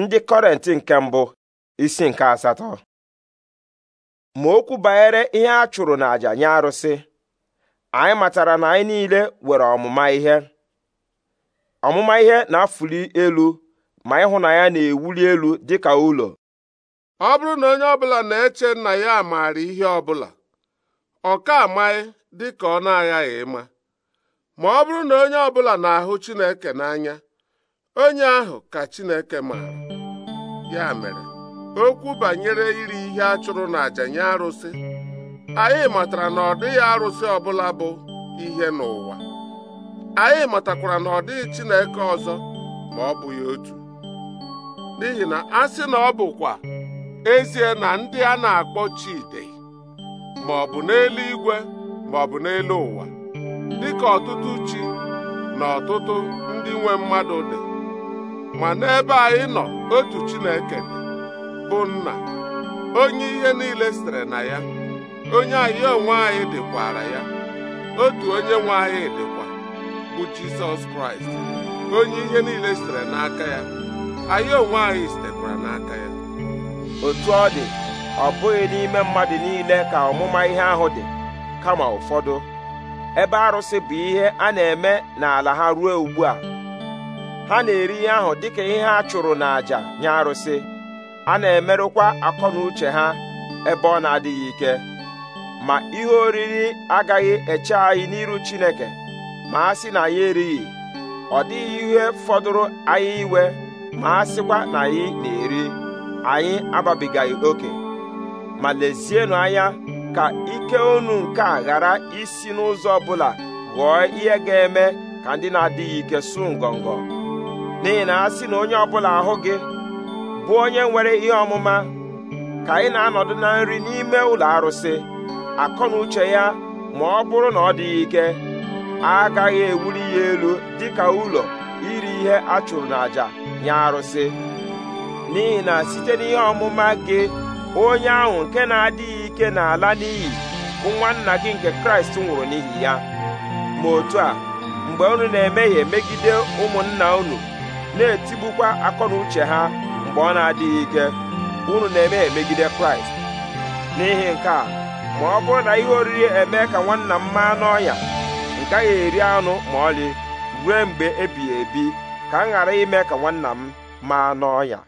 ndị kọrentị nke mbụ isi nke asatọ ma okwu banyere ihe a chụrụ n'àjà nye arụsị anyị matara na anyị niile nwere ọmụma ihe ọmụma ihe na-afụli elu ma ịhụnanya na-ewuli elu dị ka ụlọ ọ bụrụ na onye ọbụla na-eche nna ya maara ihe ọbụla ọ ka amaghị dịka ọ na-aghaghị ịma ma ọ bụrụ na onye ọbụla na-ahụ Chineke n'anya onye ahụ ka Chineke maara ya mere okwu banyere iri ihe a chụrụ n'àjà nye arụsị anyị matara na ọ dịghị arụsị ọbụla bụ ihe n'ụwa anyị matakwara na ọ dịghị Chineke ọzọ ma ọ bụghị otu n'ihi na a sị na ọ bụkwa ezie na ndị a na-akpọ Chide ma ọ bụ n'eluigwe ma ọ bụ n'elu ụwa dịka ọtụtụ chi na ọtụtụ ndị nwe mmadụ dị ma n'ebe anyị nọ otu Chineke dị bụ nna onye ihe niile sitere na ya onye anyị onwe anyị dịkwara ya otu onye nwe anyị dịkwa bụ Jizọs Kraịst onye ihe niile sitere n'aka ya anyị onwe anyị sitekwara n'aka ya otu ọ dị ọ bụghị n'ime mmadụ niile ka ọmụma ihe ahụ dị kama ụfọdụ ebe arụsị bụ ihe a na-eme n'ala ha ruo ugbu a ha na-eri ihe ahụ dịka ihe ha chụrụ n'àjà nye arụsị a na-emerụkwa akọ na uche ha ebe ọ na-adịghị ike ma ihe oriri agaghị eche anyị n'iru Chineke ma a sị na anyị erighị ọ dịghị ihe fọdụrụ anyị iwe ma a sịkwa na anyị na-eri anyị agbabigaghị oke ma lezienụ anya ka ike unu nke a ghara isi n'ụzọ ọbụla ghọọ ihe ga-eme ka ndị na-adịghị ike su ngọngọ n'ihi na a sị na onye ọbụla ahụ gị bụ onye nwere ihe ọmụma ka ị na-anọdụ na nri n'ime ụlọ arụsị akọ na uche ya ma ọ bụrụ na ọ dịghị ike agaghị ewuli ya elu dịka ụlọ iri ihe a chụrụ n'àjà nye arụsị n'ihi na site n'ihe ọmụma gị onye ahụ nke na-adịghị ike n'ala ala n'iyi bụ nwanna gị nke kraịst nwụrụ n'ihi ya ma otu a mgbe unu na-emehie megide ụmụnna unu na-etigbukwa akọ na uche ha mgbe ọ na-adịghị ike unu na-eme emegide kraịst n'ihi nke a ma ọ bụrụ na ihe oriri eme ka nwanna m maa n'ọnya a gaghị eri anụ ma ọlị ruo mgbe ebighị ebi ka m ghara ime ka nwanna m maa n'ọnya